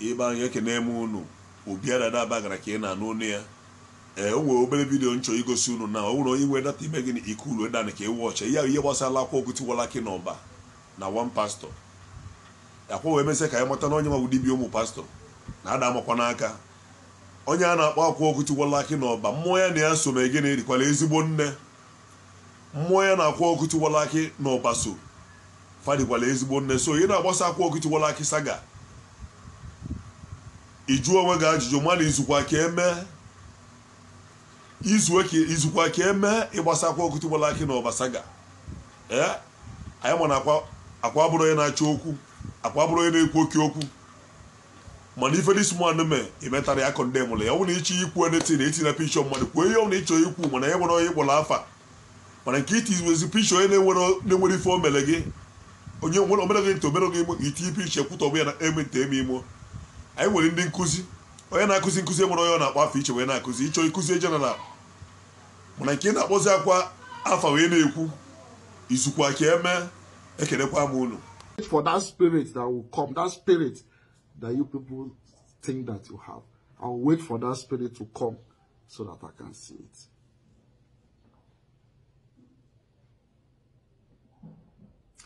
ibe anyị ekene eme unu obiara daba gara ka ị na-anụ onu ya ee o nwere obere vidiyo nchọ igosi unu na ọ nwere onye nwere data ime gị na ikulu nke ka ewu ọcha ya ihe gbasara akwa okwutiwala ki na ọba na one pastọ akwa wee mezie ka ya mata na onye nwa bụ dibia ụmụ pastọ na ada amakwa n'aka onye a na-akpọ akwa okwutiwala aki na ọba mmụọ ya na ya so na gịnị na ezigbo nne mmụọ ya na-akwa okwutiwala aki na ọba so fadikwala ezigbo nne so ị na-agbasa akwa okwutiwala aki saga ịjụ onwe gị ajụjụ mana izukwa ka eme izue ka izukwa ka eme ịgbasakwa okutugbala aki na ọbasaga ee anyị ma na akwa bụrụ onye na-achọ okwu akwa bụrụ onye na-ekwu oke okwu mana ife dis man mee imetara ya kọnde mụrụ ya ọ bụrụ na ịchọ ikwu na etina pishọ mmadụ kwuo ihe ọ ịchọ ikwu mana e nwere onye kpọrọ afa mana nke itiwezi pishọ onye na-enwere ife o mere gị onye nwere omere gị ntị omere gị imo itinye pishọ kwutọ ya na emente eme imo anyị nwere ndị nkụzi onye na-akụzi nkụzi nwere onye ọ na-akpọ afọ iche wee na-akụzi ịchọ ịkụzi jeneral mana nke na-akpọzi akwa afọ wee na-ekwu izukwa ka eme ekelekwa m unu for that spirit that will come that spirit that you people think that you have I'll wait for that spirit to come so that I can see it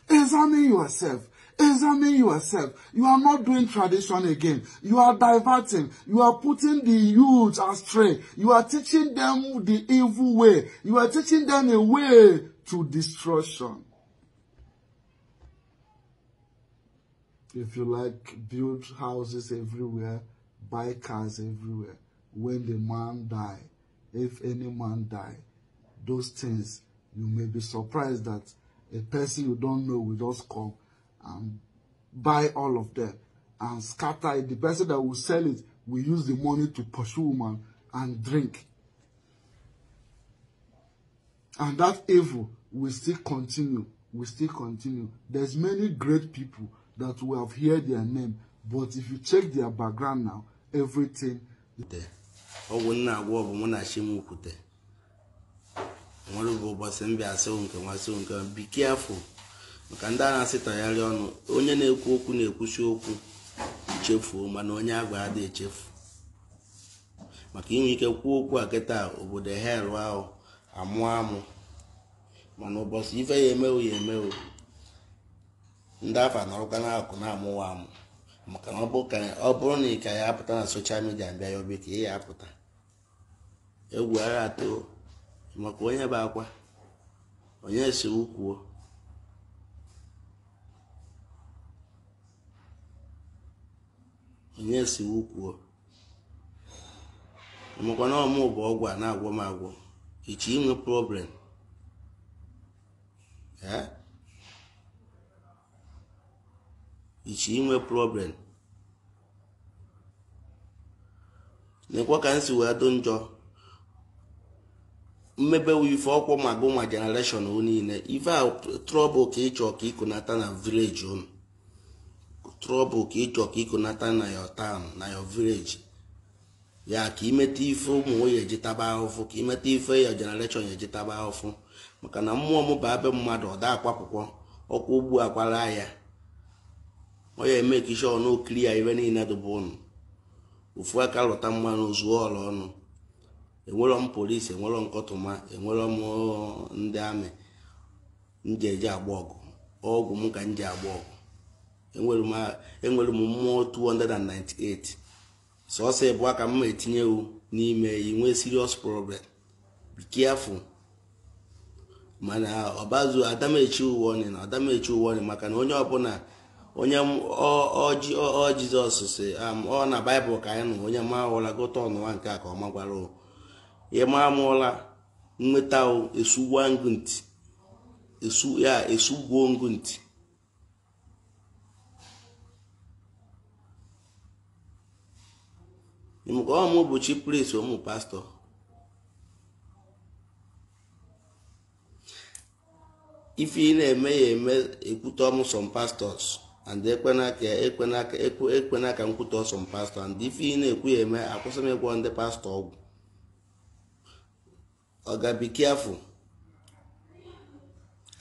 examine yourself Examine yourself. You are not doing tradition again. You are diverting. You are putting the youth astray. You are teaching them the evil way. You are teaching them a way to destruction. If you like, build houses everywhere, buy cars everywhere. When the man die, if any man die, those things, you may be surprised that a person you don't know will just come and buy all of them and scatter it. The person that will sell it will use the money to pursue woman and drink. And that evil will still continue, will still continue. There's many great people that we have heard their name, but if you check their background now, everything there. be careful maka ndị a na tagharị ọnụ onye na-ekwu okwu na ekwusi okwu echefuo mana onye agwa adịghị echefu maka inwe ike kwuo okwu a kịta obodo hel ahụ amụ amụ mana ụbọchị ife ya emewo ya emewo ndị afọ anọrọkwa n'akụ na-amụwa amụ maka na ọ bụrụ na ị ka ya apụta na soshal midia mbịa ya obi ka ị ya apụta egwu agha atọ maka onye bụ akwa onye si ukwuo onye si wukwuo makwa na ọmụ bụ ọgwụ a na-agwọ m agwọ ichi inwe problem ichi inwe problem na-ekwe ka m si wee dụ njọ mmebe ife ọkwụ ma gụ ma niile ife a trọbụl ka ịchọ ka ịkụnata na vileji unu trọbụ ka ịchọ ka ịkụnata na your tan na your vileji ya ka imeta ife ụmụ nwoke eji taba ahụfụ ka imeta ife ya generation eji taba ahụfụ maka na mmụọ m bụ abe mmadụ ọda akwapụkwọ ọkwa ugbu akwara ya onye eme ka iche ọnụ okiri ya ibe niile dụba ụnụ ofu aka lụta mmanụ zuo ọla ọnụ enwerọ m polisi enwerọ nkọtụma enwerọ m ndị amị m ji eje agba ọgụ ọgwụ m ka m ji agba ọgụ enwere m mmụọ 298 sọsọ ịbụọ ka mma etinye wu n'ime inwe serious problem be careful mana ọbazu adamechi uwe na adamechi uwe maka na onye ọbụla onye ọ si ọ na baịbụl ka anyị nụ onye ma ụla gụta ọnụwa nke a ka ọ magwara ịma amụọla nweta esugwuo ngụ ntị ka ọmụ bụ chi prince ụmụ pastọ ife ị na-eme ya eme ekwute ọmụ some pastors and ekwenaka nkwute some pastọ and ife ị na-ekwu ya eme akwụsị m ịgwọ ndị pastọ ọgwụ ọ ga-be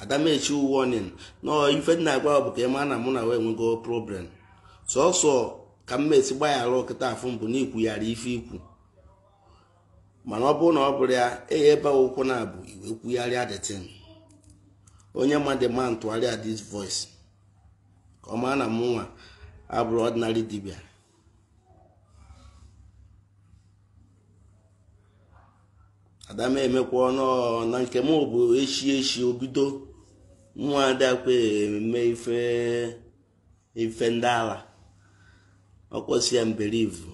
adamechi warning na ife dị na-agwa bụ ka ị ma na mụ na wee nwego problem sọsọ ka m esi gbaghara nkịta afọ mbụ na ikwughara ife ikwu mana ọ bụrụ na ọ bụrụ ya eyi ebe ụkwụ na-abụ iwe kwugharịa detin onye onye ma ntụgharịa man voice ka ọ maa na m nwa abụrụ ọdịnarị dibịa adama emekwa ọnụ na nke m bụ echi echi obido nwa adakwa eme ife ife ndị ala ọkpọsi ya mberivu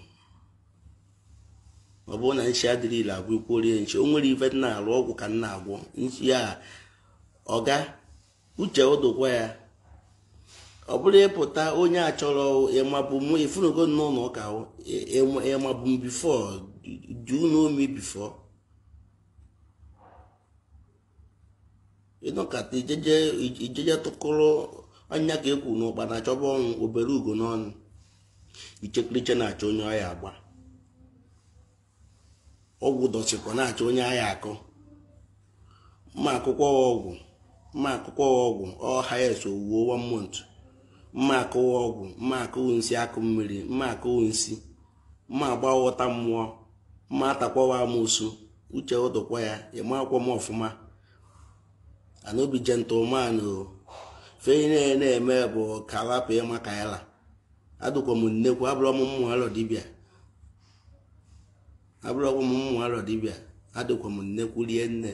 ọ bụrụ na nchi adịrị ile agwụ ikwuorie nchi o nwere ife na ọgwụ ka nna na-agwọ nchi ya ọga uche ụdụkwa ya ọ bụrụ ịpụta onye achọrọ ịmabụ mụ ifunugo n'ụlọ ụka ịmabụ e, e, m bifo du n'omi bifo ịnọkata ijeje tụkụrụ ọnya ka ekwu na na-achọba ọnwụ obere ugo n'ọnụ ichekiriche na-achọ onye ọya agba ọgwụ dọchịkwa na-achọ onye agha akọ mma akwụkwọ ọgwụ mma akwụkwọ ọgwụ ọhs owuwo one month mma akụwa ọgwụ mma akụwụ nsị akụ mmiri mma akụwụ nsị mma agbaghọta mmụọ mma atakwawa amụsụ uche ụtụkwa ya ịma akwụkwọ m ọfụma anobi gentle o fe na-eme bụ kalapụ ịma kaila adụkwa m nnekwu abụrọ m alọ dibịa abụrọkwa adụkwa m nnekwu rie nne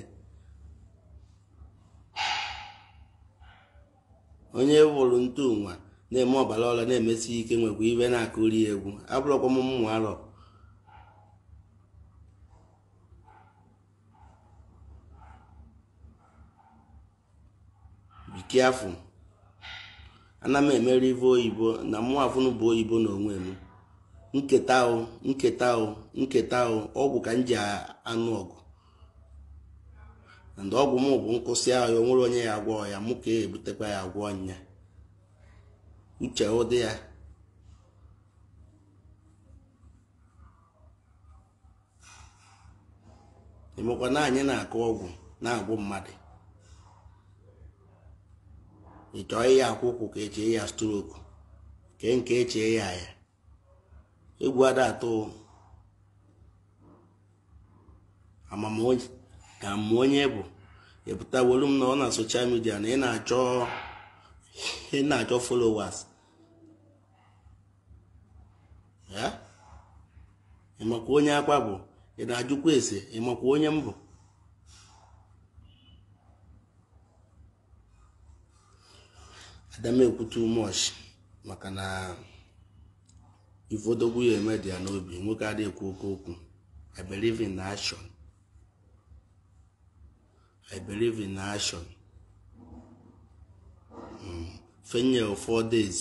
onye wụrụ ntụ nwa na-eme ọbara ọla na-emesi ike nwekwa ibe na-akụri egwu abụrọkwa m mmụọ alọ bikiafụ ana m emere ive oyibo na mụafụnụ bụ oyibo n'onwe m nketa o nketa o nketa o ọgwụ ka m ji anụ ọgụ ndị ọgwụ m bụ nkwụsị ahụ onye ya agwọ ya mụ ka e ebutekwa ya agwọ nya uche ụdị ya emekwa na anyị na-akụ ọgwụ na-agwụ mmadụ ị chọọ ya akwụkwụ ka echee ya stroku ke nke echee e ya ya egwu ada atụ amamonye ka mụ onye bụ epụtawolu m na ọ na soshal midia na ị na-achọ ị na-achọ followers ya ịmakwa onye akpa bụ ị na-ajụkwa ese ịmakwa onye m bụ adamekwu too much maka na ifodogwu ya eme dị ya n'obi nwoke adịghị ekwu oke okwu i believe in action i believe in action hmm. fenye four days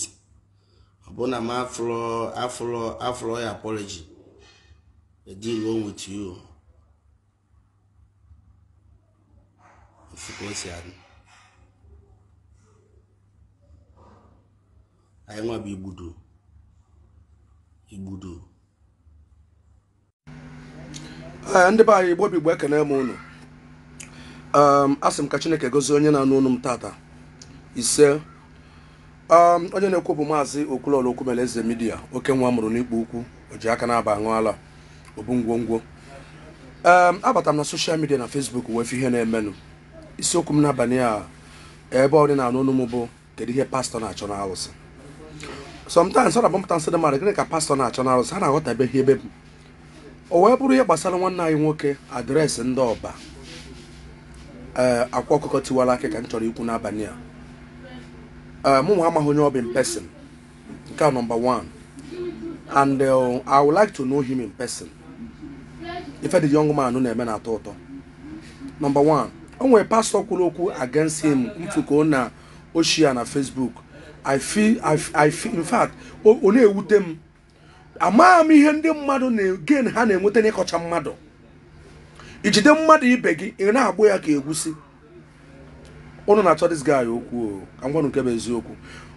ọbụna m afro afro afro ya apology deal with you osikwa o si adị anyị nwa bụ igbudu igbudu ndị be anyị igbo bụ igbo ekene m unu ehm, asị m ka chineke gozie onye na-anụ unu m tata ise ehm, onye na-ekwu bụ maazị okwulọla okwumele eze midia oke nwa mụrụ n'ikpo ukwu o ji aka na-aba aṅụ ala obu ngwongwo ehm, abata m na soshal midia na fesbuk wee ihe na-emenụ isiokwu m n'abalị a ebe ọ dị na anụ unu m bụ kedu ihe pastọ na-achọ na awụsị sometimes ọ na-agbapụta nsị dị mmadụ gịnị ka pastọ na-achọ na arụsị ha na-aghọtabeghị ebe m o wee bụrụ ihe gbasara nwanne anyị nwoke adreesị ndị ọba ee eh, akwa ọkụkọ tiwara aka ka m chọrọ ikwu n'abalị a ee eh, mụ amaghị onye ọ bụ nke a nọmba 1 and eh, I would like to know him in person ife dị young man na-eme na-atọ ụtọ nọmba 1 o nwere pastọ kwuru okwu against him mfuko na ochie na Facebook i feel i feel in fact ọ na-ewute m amaghị m ihe ndị mmadụ na-again ha na-enweta n'ịkọcha mmadụ ijide mmadụ ibe gị ị na-agbụ ya ka egwusi ụnụ na-achọ dis guy okwu angwanụ nke bụ eziokwu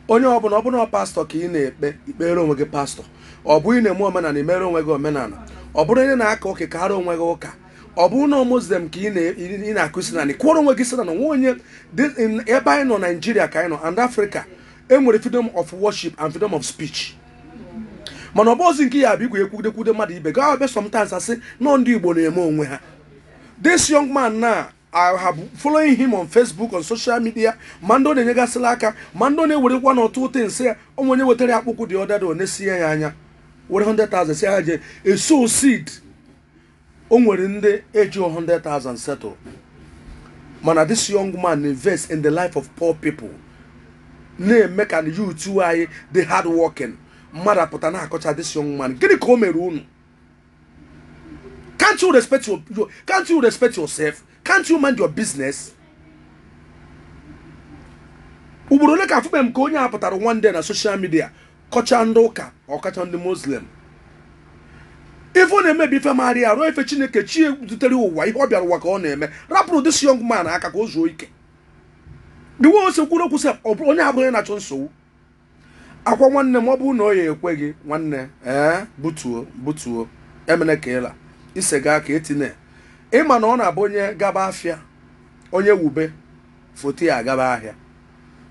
onye ọbụla ọ pastọ ka ị na-ekpe ikpere onwe gị pastọ ọ ị na-eme omenala imere onwe gị omenala ọ bụrụ onye na-aka oke ka ara onwe gị ụka ọ bụ ụnọ muslim ka ị na-akụsi na kwụrụ onwe gị sinana nwa onye ebe anyị nọ naijiria ka anyị nọ and afrịka enwere freedom of worship and freedom of speech mana ọ bụ ozi nke ya bụ igwe ekwudekwude mmadụ ibe ga abịa sometimes asị nọ ndị igbo na-eme onwe ha this young man na I have following him on Facebook on social media ma ndị ọ na-enyegasịla aka ma ndị ọ na-ewerekwa n'ọtụ ụtọ nsị ya onwe onye wetara ya akpụkụ dị ọdada ọ na-esiya ya anya were 100,000 si ha je eso seed o nwere ndị eji 100,000 settle mana this young man invest in the life of poor people na-eme ka na anyị dị hard working mmadụ apụta na-akọcha this young man gịnị ka o mere unu can't you respect your can't you respect yourself can't you mind your business ugboro ole ka afụkpe m ka onye a pụtara one day na social media kọcha ndị ụka ọkacha ndị muslim ife ọ na-emebi ife maara ya ruo ife chineke chie zutere ụwa ihe ọ bịara ụwa ka ọ na-eme rapụrụ this young man aka ka o zuo ike di we ose kwuru okwu onye abụghị onye na-achọ nsogbu akwa nwanne m ọ bụrụ na ya ekwe gị nwanne ee eh, butuo butuo emene ka ịla ise gaa ka etinye ịma na ọ na-abụ onye gaba afịa onye wube foto ya gaba ahịa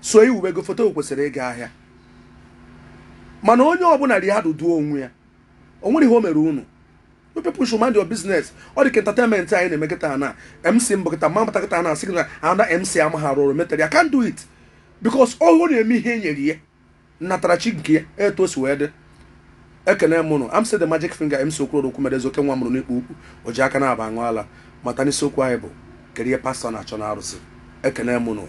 so iwube gị foto kwesịrị ịga ahịa mana onye ọbụla dị duo onwe ya o nwere ihe o mere unu people should mind your business ọ dị ka entertainment anyị na-eme kịta na mc mbụ kịta ma mbata kịta na asị na ana mc ama ha rụrụ metara ya do it because ọ na-eme ihe e nyere ya natara nke ya eto si wee dị ekene m am amsi the magic finger mc okorodoku mere ezoke nwa mụrụ n'ikpu ukwu o ji aka na-aba aṅụ ala mata n'isiokwu anyị bụ kerie pastọ na-achọ na arụsị ekene m nụ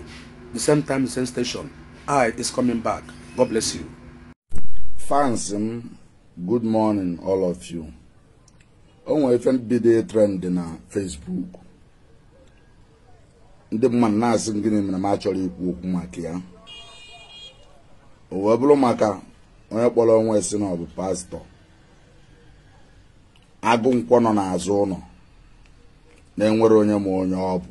the same time the same station i is coming back god bless you fans m mm, good morning all of you o nwere ife trend na Facebook ndị mmadụ na-asị gịnị mere m achọrọ ikwu okwu maka ya o wee bụrụ maka onye kpọrọ onwe si na ọ bụ pastọ agụ nkwọ nọ n'azụ ụlọ na-enwere onye ma onye ọ bụ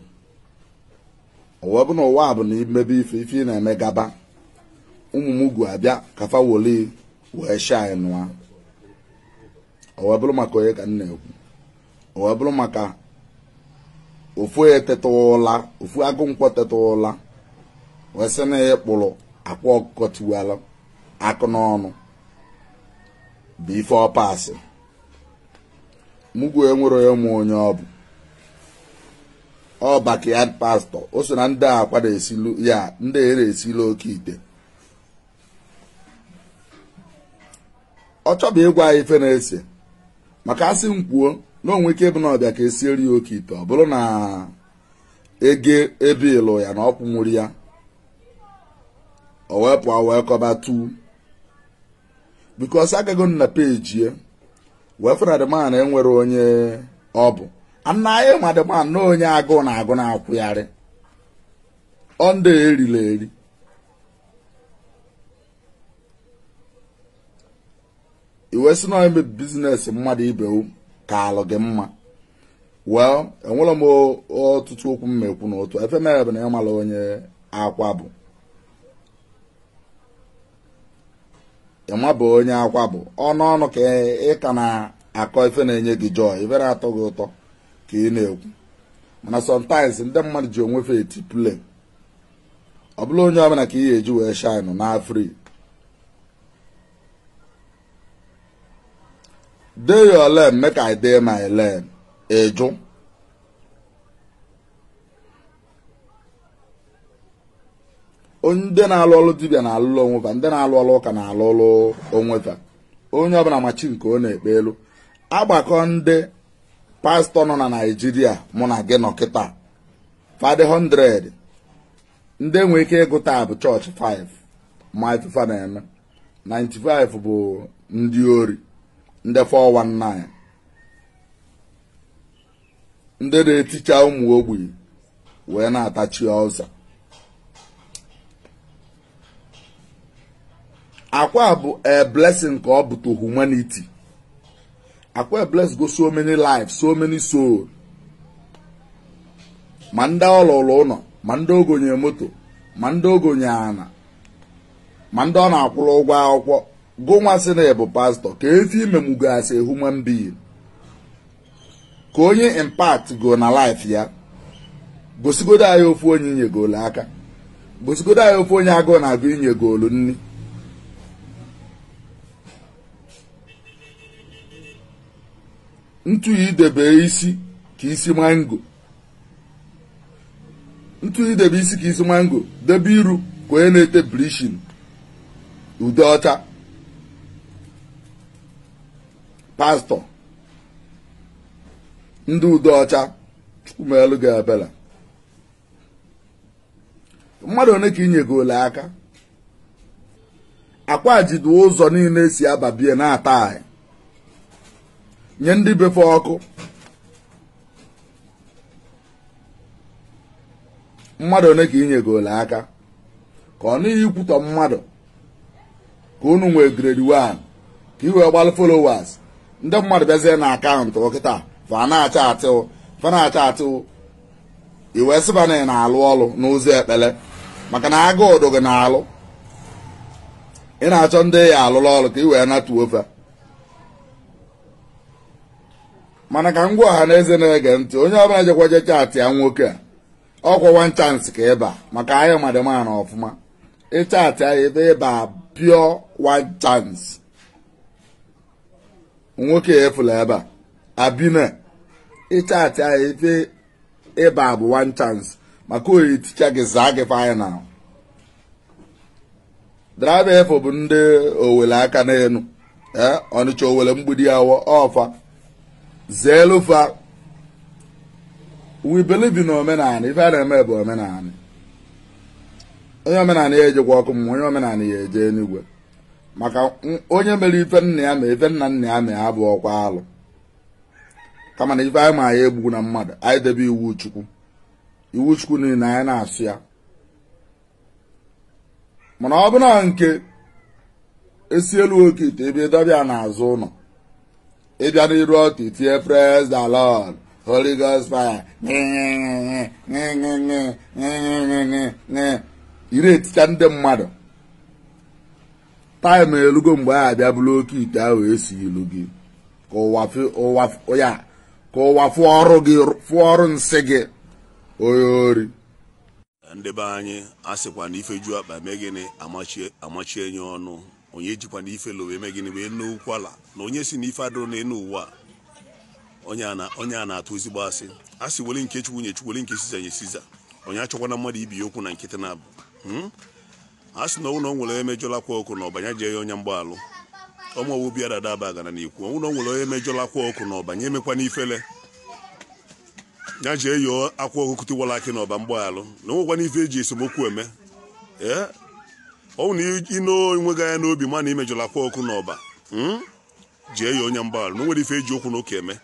o wee bụ na ụwa bụ na imebe ife ife ị na-eme gaba ụmụ m gu abịa kafa woli wee anyị nụa ọ wee bụrụ maka onye ka m na-ekwu ọ wee bụrụ maka ofu etetụla ofu agụ nkwọ sị na ya kpụrụ akwa ọkụkọ tiwala akụ n'ọnụ bụ ife ọpasị mugwe nwere onye mụ onye ọ bụ ọ bakịad pastọ o so na ndị a kwado esilu ya ndị ere esila oke ite ọ chọbụ ịgwa ife na-ese maka asị m kwuo na onwe ike bụ na ọbịa ka esieri ya oke ite ọ bụrụ na ege ebe ịlụ ya na ọkwụnwuri ya owepụ wee kọba tu bikos agago na peji ya wee fụna enwere onye ọ bụ ana na onye agụụ na agụ na akwụgharị ọnda erila eri iwe si na ime bizinesi mmadụ ibe ka alụ gị mma well enwere m ọtụtụ okwu mmekwu n'otu efe mere bụ na ya onye akwa bụ ịma onye akwa bụ ọnụ ọnụ ka ị ka na-akọ ife na-enye gị jọ ibere atọ gị ụtọ ka ị na-ekwu mana sometimes ndị mmadụ ji onwefe eti play ọ bụla onye ọbụla ka ị ga-eji wee shine na dey your lane make i dey my lane eju ndị na-alụ ọlụ dibia na-alụlụ onwefa ndị na-alụ ọlụ ụka na-alụ ọlụ onwefa onye ọbụla machi nke ọ na-ekpe elu agbakọ ndị pastọ nọ na naijiria mụ na gị nọ kịta fadị 100 ndị nwee ike ịgụta bụ chọọchị 5 ma ifufa na-eme 95 bụ ndị ori ndị 419 ndị na-eticha ụmụ ogbenye wee na-atachi ọzọ akwa bụ a blessing ka ọ bụ to humanity akwa bless go so many lives so many soul ma ndị ọlụlụ ụlọ ma ndị ogonye moto ma ndị ogonye ana ma ndị ọ na-akwụrụ ụgwọ akwụkwọ gụnwa na ịbụ pastọ ka efi imemụgasị human being ka onye impact go na laịf ya gosigodo anyị ofu onye goolu aka gosigodo anyị ofu onye agụụ na-agụ goolu nri ntu idebe isi ka isi mango ntu idebe isi ka isi mango debe iru ka onye na-ete blishin ude ọcha pastọ ndị udo ọcha chukwumelụ gị ebere mmadụ one ka inyegole aka akwa jidu ụzọ niile si ababie na-ata anyị nye ndị befe ọkụ mmadụ one ka inyegole aka ka ọ n'ihi ikwutọ mmadụ ka unu nwee grade 1 ka i wee gbalụ followers ndị mmadụ bịazie na akaụntụ ọkịta fa na-acha atụ fa na-acha atụ iwe sịba na alụ ọrụ n'ụzọ ekpele maka na agụ ụdụ gị na-alụ ị na-achọ ndị ya alụrụ ọrụ ka ị wee natuo ofe mana ka ngwa ọha na eze na-ege ntị onye ọbụla jekwaje chaatị ya nwoke a ọ wan chansị ka ịba maka ahịa madịmana ọfụma ịchaatị ya ebe ịba pịọ wan chansị nwoke efula ebe a abina ịchatị ya efe ịba bụ one chance maka oyi ticha gị zaa gị final draiva efo bụ ndị owele aka n'elu e, ọnịcha owele mgbidi awa ọfa zeelufa we believe omenala ife a na-eme bụ omenala onye omenala ya ejekwa ọkụ mmụọ onye omenala ya eje n'igwe maka onye mere ife nna ya ma ife nna nna ya ma ya bụ ọkwa alụ kama na ife anyị ma ya egbugu na mmadụ anyị debe iwu chukwu iwu chukwu niile anyị na-asụ ya mana ọ bụ na nke esi elu oke ite ebe ịdọbịa n'azụ ụlọ ịbịa n'iru ọtụ itinye praise the lord holy ghost fire ire eticha ndị mmadụ taịm elugo mgbe a abịa bụrụ oke ite ahụ esi ilu gị ka ụwa fụọ ọrụ gị nsị gị onye ori ndị be anyị a sịkwa na ju akpa mee gịnị amachie ọnụ onye jikwa na ife lowe eme gịnị wee na onye si na ife adụrụ na enu ụwa onye a na-atụ ezigbo asị a sị weli nke chukwu nye chukwu weli nke siza nye siza onye achọkwana mmadụ ibi ya okwu na nkịtị na abụ hmm? a sị na ụlọ nwere emejọlakwa ọkụ na ọbanye jee ya onye mgbaalụ ọmụowu bịa dada abagana n'ikwu ụlọ nwere onye emejọlakwa ọkụ na ọbanye emekwa n'ifele ya jee yọọ akwa ọkụkụ tiwara akị na ọba mgbaalụ na onwekwana ife eji esemokwu eme ee ọnwụ na ino enweghị anya n'obi ma na imejọlakwa ọkụ na ọba hmm? jee ya onye mgbaalụ na onwere ife eji okwu na ụka eme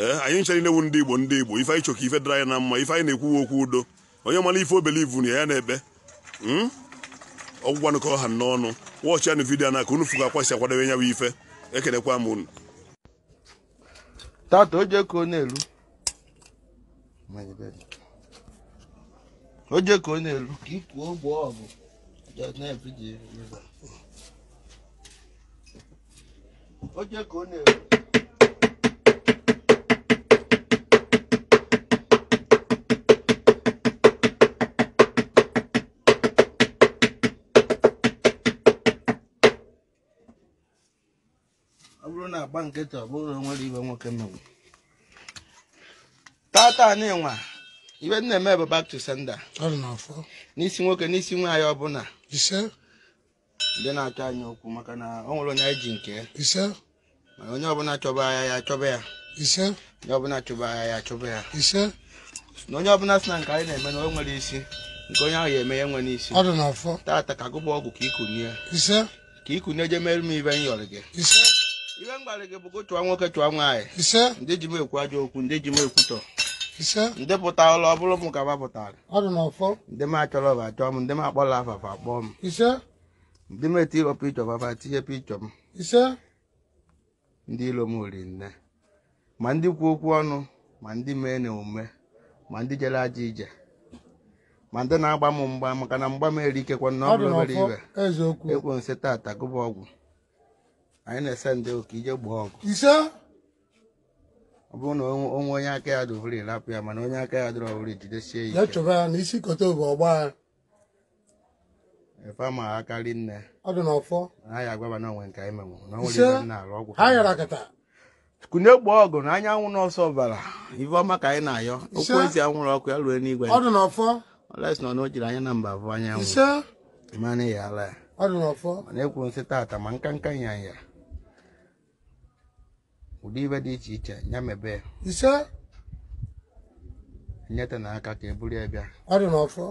ee anyị nchara inewu ndị igbo ndị igbo ife anyị chọka ife dara anyị na mma ife anyị na-ekwuwe okwu udo onye mara ife obelivu na ya na-ekpe hmm? ọgwụgwanụkọ ọha n'ọnụ wọchị anụ vidiyo na ka unu fụga akwasị akwadobe ya bụ ife ekelekwa m unu tata oje na-elu na-elu na-elu ọ bụrụ na agba nkịtị ọ bụrụ nwere ibe nwoke mmegbu tata n'ịnwa ibe na-eme bụ back to sender n'isi nwoke n'isi nwaanyị ọbụla ndị na-achọ anyị okwu maka na ọ nwere onye anyị ji nke mana onye ọbụla chọba agha ya achọba ya onye ọbụla chọba agha ya achọba ya na onye ọbụla sị na nke anyị na-eme na o nwere isi nke onye ahụ ya eme ya nwe n'isi tata ka gụba ọgwụ ka ikunye ka ikunye je merụ m ibe m yọrọ gị m gwara gị bụ chụwa nwoke chụwa nwaanyị ndị ji ekwu ajọ okwu ndị ji m ekwutọ ndị pụta ụlọ ọ bụrụ m ka mapụtara ndị m achọrọ achọ m ndị m akpọla afafa akpọọ ndị m eti tinye m ndị ilo m ori nne ma ndị kwu okwu ọnụ ma ndị mee na omume ma ndị jere aja ije ma ndị na-agba m mgba maka na mgba m ọ bụrụ nsị tata gụba ọgwụ anyị na-ese ndị ka ije gbuo ọgụ ọ bụrụ na onwe onye aka ya dụvụri rapụ ya mana onye aka ya dụrụ ọwụrụ jidesie ya chọba ya na isi ọgba ya efe ma akarị nne ọ dị n'ọfọ na agwaba na onwe nke anyị menwụ na onwere ọgwụ kunye gbaa ọgụ na anyanwụ n'ọsọ ọbara ifeọma ka anyị na-ayọ okwu ezi anwụrụ ọkụ ya ruo n'igwe ọ dị n'ọfọ nọ anya na mba anyanwụ mana ya ya ọ nsị taata ma nka nka ya ụdị ibe dị iche iche ya mebee ise nyeta na aka ka e buru ya bịa ọ dị n'ọfọ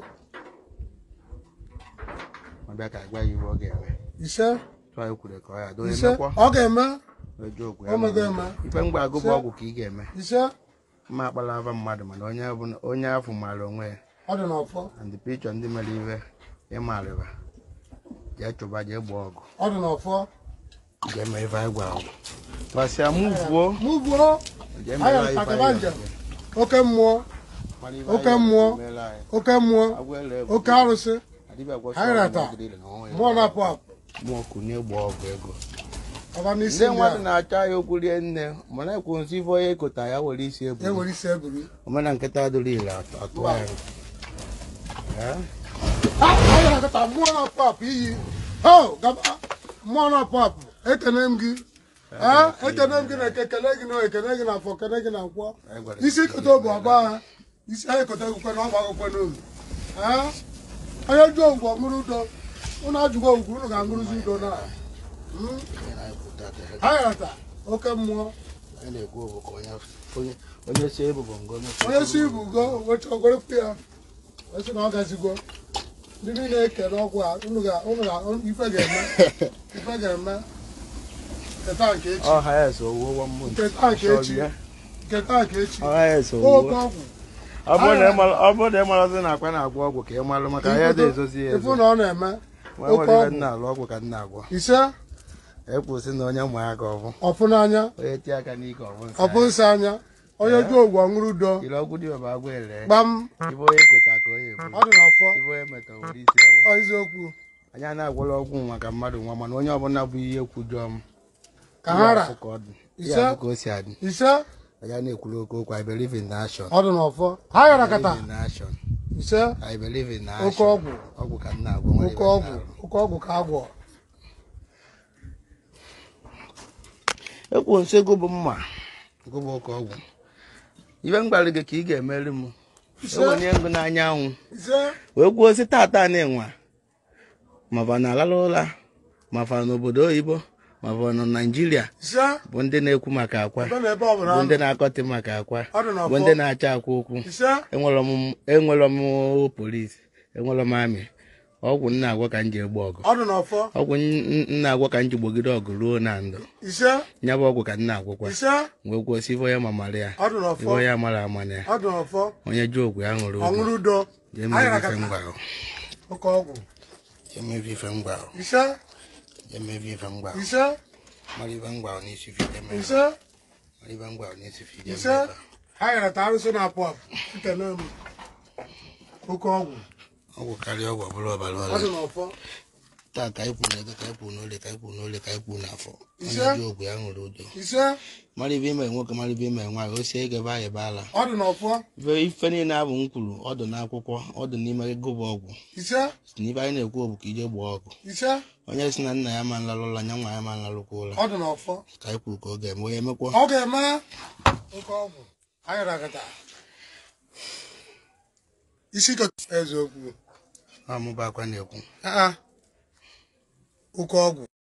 ka agwa ya ọ ga-eme ise tụọ ya ka ọ ya ọ ga-eme ife mgbe agụ bụ ọgwụ ka ị ga-eme mma akpala ava mmadụ mana onye afọ maara onwe ya mere ịmarịba jee chụba jee ọgụ ga-eme anyị ọgwụ basi amuvuo muvuo aya akabanja oke mmụọ oke mmụọ oke mmụọ oke arụsị hairata mmụọ na-apụ apụ na ndị mmadụ na ya okwu rie nne mana ekwu ekota ya were isi omena ile atụ ya mmụọ na-apụ apụ ekene m gị ekene na ekele gị na gị na afọ ekele gị na nkwọ isi kote bụ abụọ ha isi ha na ọgba akwụkwọ n'oge onye jụọ ọmụrụ udo ụnụ ụnụ ga-aṅụrụzi udo na hmm? ha oke mmụọ onye si ebugo wecha ogorokwu ya esi na ọ gazigo ndị niile ọgwụ a ga-eme ife ga-eme ọ bụrụ na ị marazi na akwa na-agwọ ọgwụ ka ị marụ maka ahịa dị ezozi ya ezo na-eme na-alụ ọgwụ ka nna agwọ ise ekwụsị na onye mụ aka ọbụ onye tie aka n'ike ọbụ nsị anya onye ju ogwu ọṅụrụ udo ọ dị n'ọfọ eziokwu na ọgwụ maka mmadụ nwa mana onye ọbụla bụ ihe m ka ha ra ise ya na-ekwuru oke okwu i believe in action n'ọfọ ha gara kata ise i believe oke ọgwụ ọgwụ ka nna agwọ oke ọgwụ oke ọgwụ ka agwọ ekwu nso ego bụ mma ego bụ oke ọgwụ ibe m gwara gị ka ị ga-emeri m enwenye ngụ n'anyanwụ wee gwuo ozi tata na-enwa maba na alala ụra na obodo oyibo ma ọ bụ na naijiria bụ ndị na-ekwu maka akwa bụ ndị na-akọtị maka akwa bụ ndị na-acha akwa okwu enwere m polis enwere m amị ọgwụ nna agwa ka m ji egbu ọgụ ọgwụ nna agwa ka m ji gbogide ọgụ ruo na ndụ ya bụ ọgwụ ka nna agwụkwa wee kwụsị ya mara ya ife ya mara onye ji ogwu ya ṅụrụ emevi vangwa isa mari vangwa ni si fi deme isa mari vangwa ni si fi deme isa hayra taru so na pop tita na mu ko ko ọgwụ ọgwụ karịa ọgwụ ọbụla ọbara ọrịa taa ka na ego ka ikwu kwuru n'ole ka ikwu kwuru n'ole ka ikwu kwuru n'afọ onye ji ogwe ya ṅụrụ udo mara ibe ime nwoke mara ibe ime nwaanyị o si ege anyị baala ife niile abụ m kwuru ọdụ n'akwụkwọ ọdụ n'ime ego bụ ọgwụ n'ibe anyị na-ekwu bụ ka ije gbaa ọgụ onye si na nna ya ma nlalụ ụla nya nwa ya ma nlalụkwa ụla ka anyị ka ọ ga-eme onye mekwa. o código